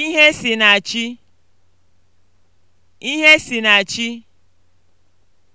Ihe si na chi.